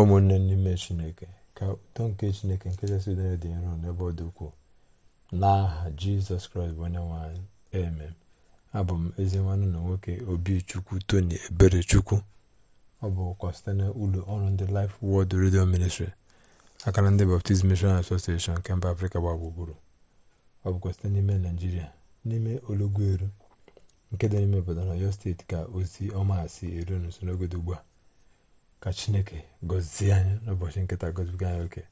ụmụnne n'ime chineke ka ụtọ nke chineke nke chasị udo dị nro n'ebe ọ dị ukwuu n'aha jizọs kraịst bụ onye nwanyị amen abụ m ezi nwanne na nwoke obi chukwu tony ebere chukwu ọ bụkwa site na ụlọ ọrụ ndị laịf wọd redio Ministry akara ndị Baptist Mission asosieshon nke mba Afrịka gba gburugburu ọ bụkwa site n'ime Naijiria n'ime olọgwueru nke dị n'ime obodo na steeti ka ozi ọma si eru n'usoro n'ogodo ugbu a ka chineke gọzie anyị n'ụbọchị nkịta gọzibiga anyị oke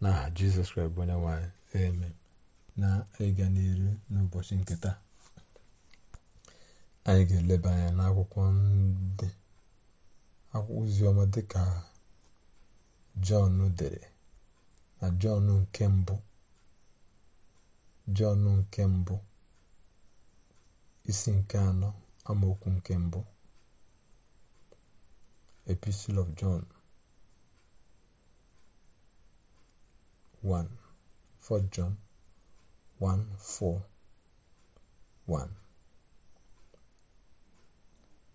n'aha jizọs kraịst bụ onye nwanyị eme na ịga n'iru n'ụbọchị nkịta anyị ga-eleba anya n'akwụkwọ ndị oziọma dịka jọn dere na jọn nke mbụ jọn nke mbụ isi nke anọ amaokwu nke mbụ Epistle of John 1 4 John 1 4 1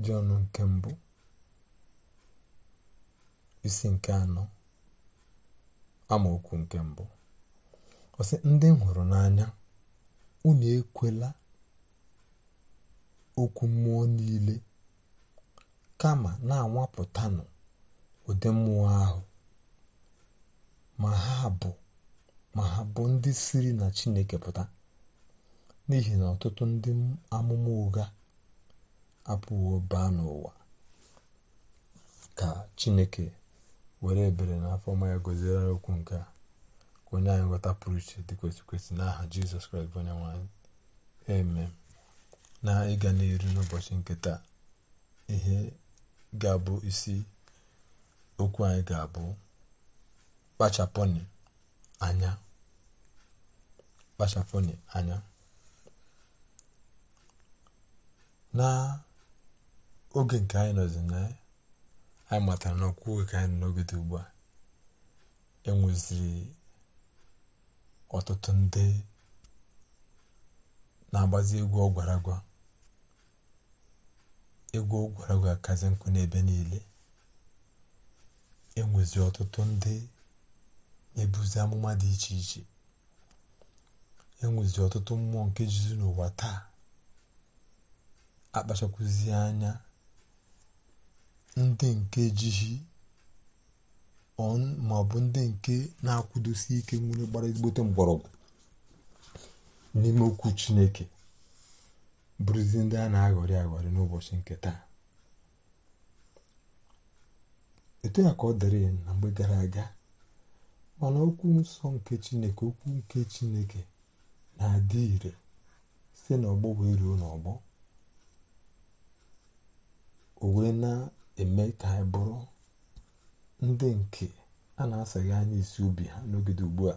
John nke mbụ isi nke anọ amaokwu nke mbụ ọsị ndị m hụrụ n'anya unu ekwela okwu mmụọ niile kama na-anwapụtanụ ụdị mmụọ ahụ ma ha bụ ma ha bụ ndị siri na Chineke pụta n'ihi na ọtụtụ ndị amụma ụga apụwo baa n'ụwa ka Chineke were ebere na afọ ọma ya gọziere okwu nke a ka onye anyị pụrụ iche dị kwesị kwesị n'aha Jizọs Kraịst bụ onye eme na ịga n'iru n'ụbọchị nke taa ihe ga-abụ isi okwu anyị ga-abụ kpachapụnụ anya kpachapụnụ anya n'oge nke anyị nọzi na anyị matara na ọkwụ oge ka anyị nọ n'oge dị ugbu a enweziri ọtụtụ ndị na-agbazi egwu ọgwara agwa egwu ụkwara ga-akazi nkụ n'ebe niile enwezi ọtụtụ ndị ebuzi amụma dị iche iche enwezi ọtụtụ mmụọ nke jizi n'ụwa taa akpachakwụzi anya ndị nke jihi ma ọ bụ ndị nke na-akwụdosi ike nwere gbara ezigbote mgbọrọgwụ n'ime okwu Chineke bụrụzi ndị a na-aghọrị aghọrị n'ụbọchị nke taa etu ya ka ọ dịrị na mgbe gara aga mana okwu nsọ nke chineke okwu nke chineke na-adị ire site n'ọgbọ wee ruo n'ọgbọ o wee na-eme ka anyị bụrụ ndị nke a na-asaghị anya isi obi ha n'ogede ugbu a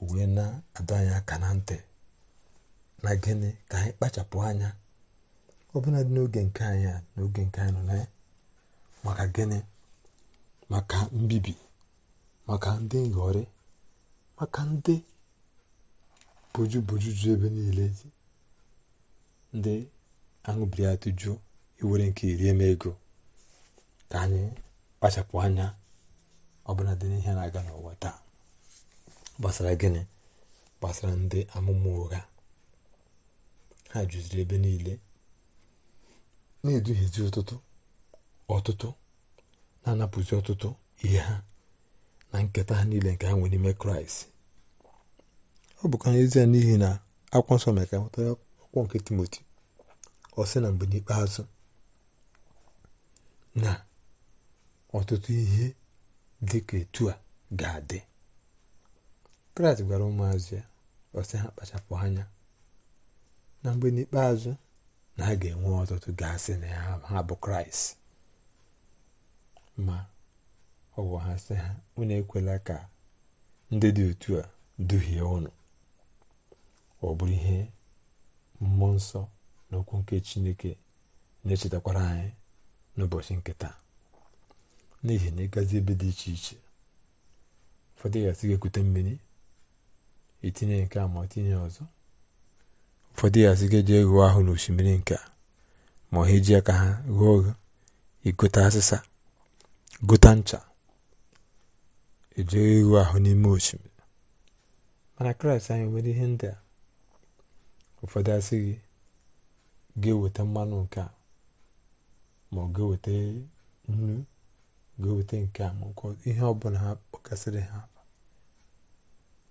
o wee na-adọ aka na ntị na gịnị ka anyị kpachapụ anya ọbụla n'oge nke anyị a n'oge nke anyị nọ na ya maka gịnị maka mbibi maka ndị nghọrị maka ndị boju ebe niile ndị aṅụbiri atụjụ iwere nke iri m ego ka anyị kpachapụ anya ọbụla dị n'ihe na-aga n'ụwa taa gbasara gịnị gbasara ndị amụma ụgha ha juziri ebe niile na-eduhiezi ụtụtụ ọtụtụ na-anapụzi ọtụtụ ihe ha na nketa ha niile nke ha nwere n'ime kraịst ọ bụkwa ezie n'ihi na akwa nsọ mere ka nweta akwụkwọ nke timoti ọ sị na mgbe n'ikpeazụ na ọtụtụ ihe dị ka etu a ga-adị kraịst gwara ụmụazụ ya ọ sị ha kpachapụ anya na mgbe n'ikpeazụ na a ga-enwe ọtụtụ gasị na ha bụ kraịst ma ọ bụ ha sị ha unu ekwela ka ndị dị otu a duhie ụnụ ọ bụrụ ihe mmụọ nsọ na okwu nke chineke na-echetakwara anyị n'ụbọchị nke taa n'ihi na ịgazi ebe dị iche iche ụfọdụ gasị ga-ekute mmiri itinye nke a ma tinye ọzọ ụfọdụ ya asị ga-eje ghụọ ahụ n'osimiri nke a ma ha eji aka ha ghụọ oghe asịsa gota ncha ejegha ịghụ ahụ n'ime osimiri mana kraịst anyị nwere ihe ndị a ụfọdụ asị gị ga-eweta mmanụ nke a ma ọ ga-eweta nnu ga-eweta nke a ma nke ihe ọbụla ha kpọkasịrị ha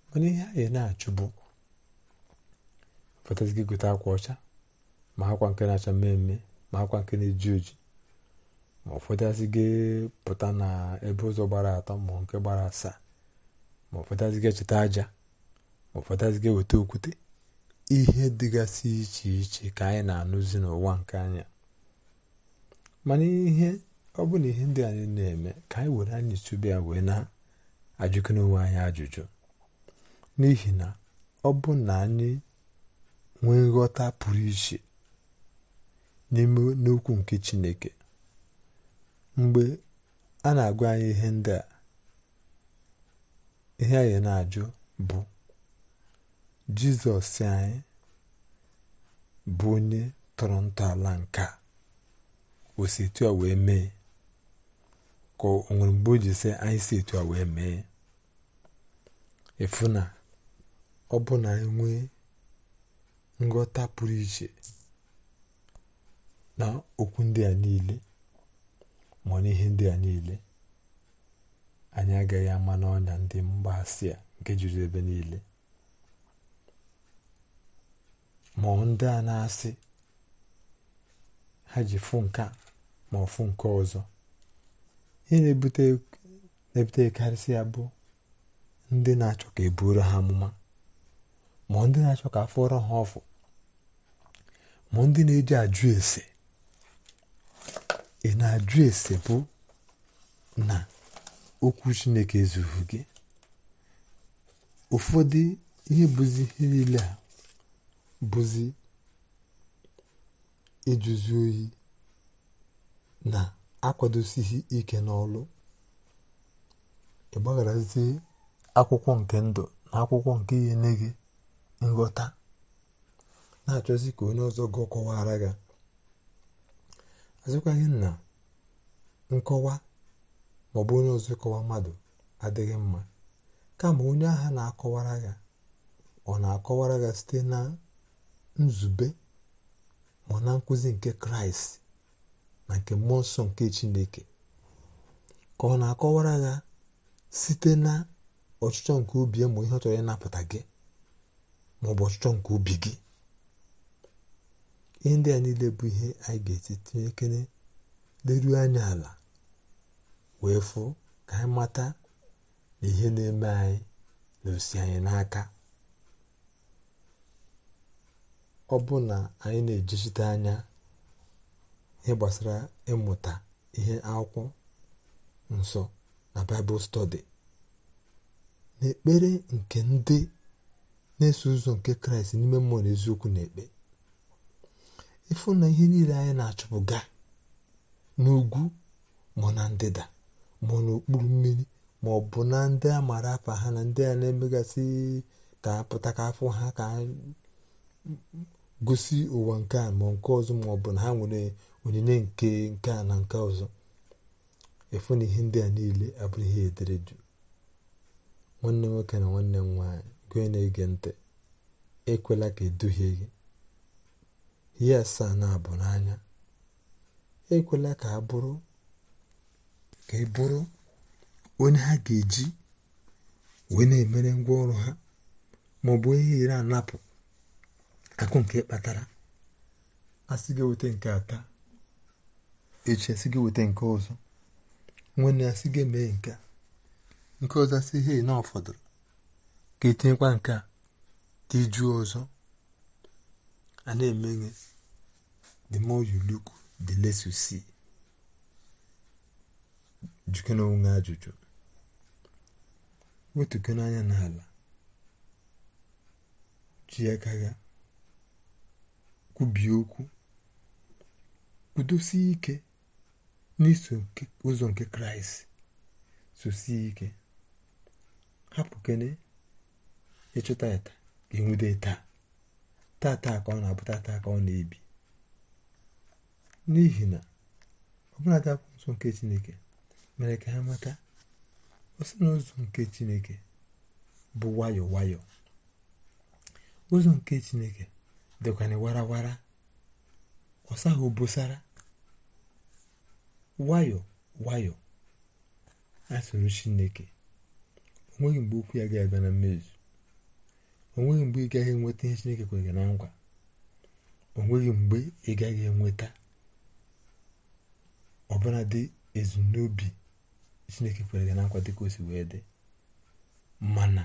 mana ihe anyị na-achụ gị gote akwa ọcha ma akwa nke na-acha mmemme ma akwa nke na-eji oji ma ụfọdụazị gị pụta na ebe ụzọ gbara atọ ma nke gbara asaa ma ụfọdụazị gị cheta aja ma ụfọdụazị gị weta okwute ihe dịgasị iche iche ka anyị na-anụzi n'ụwa nke anya mana ihe ọ bụ na ihe ndị anyị na-eme ka anyị were anyị tụbe ya wee na-ajụkọ n'onwe anyị ajụjụ n'ihi na ọ bụ na anyị nwee nghọta pụrụ iche n'ime n'okwu nke Chineke mgbe a na-agwa anyị ihe ndị a ihe anyị na-ajụ bụ Jizọs anyị bụ onye tọrọ ntọala nke a etu a wee mee ka o nwere mgbe o ji anyị si etu a wee mee efu na ọ bụ na anyị ngota pụrụ iche na okwu ndị a niile ma ọ n'ihe ndị a niile anyị agaghị ama n'ọnya ndị asị a nke juru ebe niile ma ọ ndị a na-asị ha ji fụ nke ma fụ nke ọzọ ihe na-ebute ya bụ ndị na-achọ ka e ha amụma ma ndị na-achọ ka afọrọ ha ọfụ mụ ndị na-eji ajụ ese ị na-ajụ ese bụ na okwu chineke ezughị gị ụfọdụ ihe bụzi ihe niile a bụzi ịjụzi oyi na-akwadosighị ike n'ọlụ ị gbagharazie akwụkwọ nke ndụ na akwụkwọ nke ihe nne gị nghọta na-achọzi ka onye ọzọ gụọ kọwara gị azụkwaghị na nkọwa maọbụ onye ọzọ kọwa mmadụ adịghị mma kama onye agha na-akọwara gị ọ na-akọwara gị site na nzube ma na nkụzi nke kraịst na nke mmụọ nsọ nke chineke ka ọ na-akọwara gị site na ọchịchọ nke obi ma ihe ọ chọrọ ịnapụta gị ma ọchịchọ nke ubi gị ihe a niile bụ ihe anyị ga eti tinye ekele leruo anya ala wee fụ ka anyị mata na ihe na-eme anyị na osi anyị n'aka ọ bụ na anyị na-ejisite anya ihe gbasara ịmụta ihe akwụkwọ nsọ na baịbụl stọdi n'ekpere nke ndị na-eso ụzọ nke kraịst n'ime mmụọ na eziokwu na ekpe ịfụ na ihe niile anyị na achụpụga ga n'ugwu ma na ndịda ma n'okpuru mmiri ma ọ bụ na ndị a maara afa ha na ndị a na-emegasị ka apụta ka afọ ha ka gosi ụwa nke a ma nke ọzọ ma ọ bụ na ha nwere onyinye nke nke a na nke ọzọ efu na ihe ndị a niile abụrụ ihe ederedu nwanne nwoke na nwanne m nwaanyị onye na-ege ntị ekwela ka eduhie gị ihe asaa na-abụ n'anya ekwela ka a bụrụ ka ị e bụrụ onye ha ga-eji wee na-emere ngwa ọrụ ha ma ọ bụ onye ire anapụ akụ nke kpatara asị gị weta nke ata echi asị gị weta nke ọzọ nwanne asị gị mee nke nke ọzọ asị ihe na ọ fọdụrụ ka etinyekwa nke a dị jụụ ọzọ a na-eme ihe the more you look the less you see jụkena onwe ajụjụ wetukena anya n'ala ji aka ya kwubie okwu kwudosie ike n'iso ụzọ nke kraịst sosie ike hapụ kene ịchụta ịta ga-enwude taa taa ka ọ na abụta taa ka ọ na-ebi n'ihi na ọbụladị akwụkwọ nsọ nke chineke mere ka ha mata ọsị n'ụzọ nke chineke bụ wayo-wayo. ụzọ nke chineke dịkwana warawara ọsaghị obosara wayo-wayo asụrụ chineke onweghị mgbe okwu ya ga-abịa na mmezu onweghị mgbe ị gaghị enweta ihe chineke kwere gị na nkwa onweghị mgbe ị gaghị enweta ọbụla dị ezumnobi chineke kwere gị na nkwa dị ka o si wee dị mana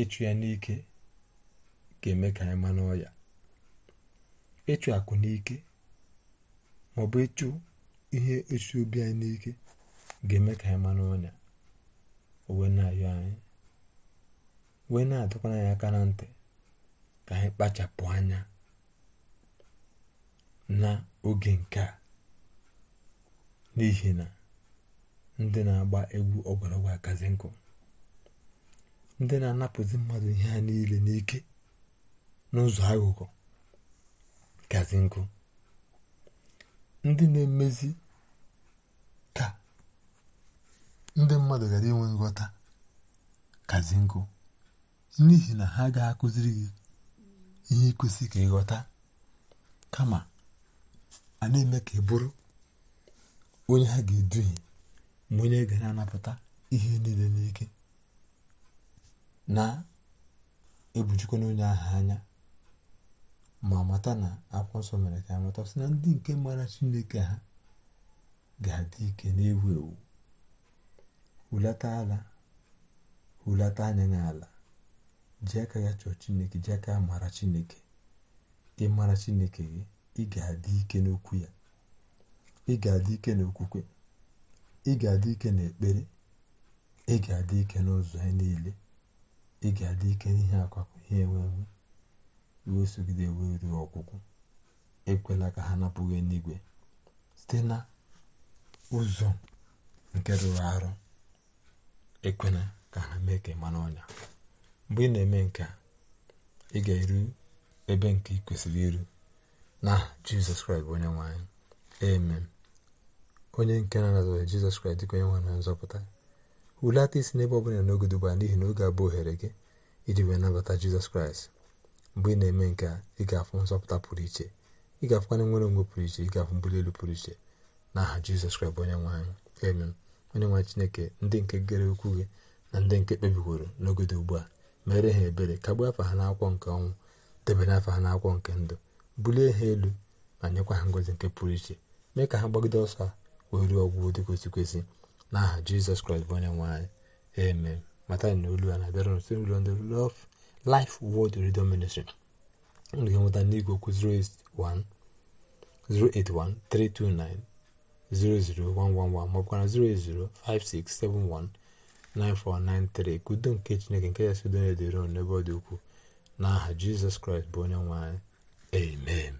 ịchụ ya n'ike ga-eme ka anyị ma n'ọya ịchụ akụ n'ike ma ọ bụ ịchụ ihe esi obi anyị n'ike ga-eme ka anyị ma n'ọnya owe na-ayọ anyị wee na-adọkwa anyị aka na ntị ka anyị kpachapụ anya na oge nke a n'ihi na ndị na-agba egwu ọgwọrọgwọ akazi nkụ ndị na-anapụzi mmadụ ihe a niile n'ike n'ụzọ aghụghọ gazi nkụ ndị na-emezi ka ndị mmadụ ghara inwe nghọta kazi nkụ n'ihi na ha ga akụziri gị ihe ikwesị ka ịghọta kama a na-eme ka ị bụrụ onye ha ga-eduhie ma onye ga na-anapụta ihe niile n'ike na-ebujikwa n'onye ahụ anya ma mata na akwụkwọ nsọ mere ka amata sị na ndị nke mara chineke ha ga-adị ike na-ewu ewu hulata ala hulata anya n'ala ji aka ya chọọ chineke ji aka mara chineke ịmara chineke gị ị ga-adị ike n'okwu ya ị ga-adị ike n'okwukwe ị ga-adị ike n'ekpere ị ga-adị ike n'ụzọ ya niile ị ga-adị ike n'ihe akwapụ ihe enwewe wee sogide wee ruo ọgwụgwụ ekwela ka ha napụghị n'igwe site na ụzọ nke rụrụ arụ ekwela ka ha mee ka ịma ọnya mgbe ị na-eme nke ị ga-eru ebe nke ị kwesịrị iru na jizọs kraịst bụ onye nwe anyị amen onye nke na-anazụghị jizọs kraịst dịka onye nwe na nzọpụta hulata isi n'ebe ọ bụla n'oge dubara n'ihi na oge abụ ohere gị iji wee nabata jizọs kraịst mgbe ị na-eme nke a ị ga-afụ nzọpụta pụrụ iche ị ga-afụkwana nwere onwe pụrụ iche ị ga-afụ mbuli elu pụrụ iche na aha jizọs kraịst bụ onye nwe anyị amen onye nwe chineke ndị nke gere okwu gị na ndị nke kpebiworo n'ogodo ugbu a mere ha ebere kagbuo afa ha n'akwọ nke ọnwụ debere afa ha n'akwọ nke ndụ bulie ha elu ma nyekwa ha ngozi nke pụrụ iche mee ka ha gbagide ọsọ wee ruo ọgwụgwụ dị kwesị n'aha aha jizọs kraịst bụ onye nwanyị anyị mata na olu a na-abịara n' ndị love life world radio ministry ndụ ga-enweta n'igwe okwu 08132900111 maọbụkwa na 0805671 9493 ka udo nke chineke nke ya udo na n'ebe ọ dị ukwuu n'aha jizọs kraịst bụ onye nwe anyị amen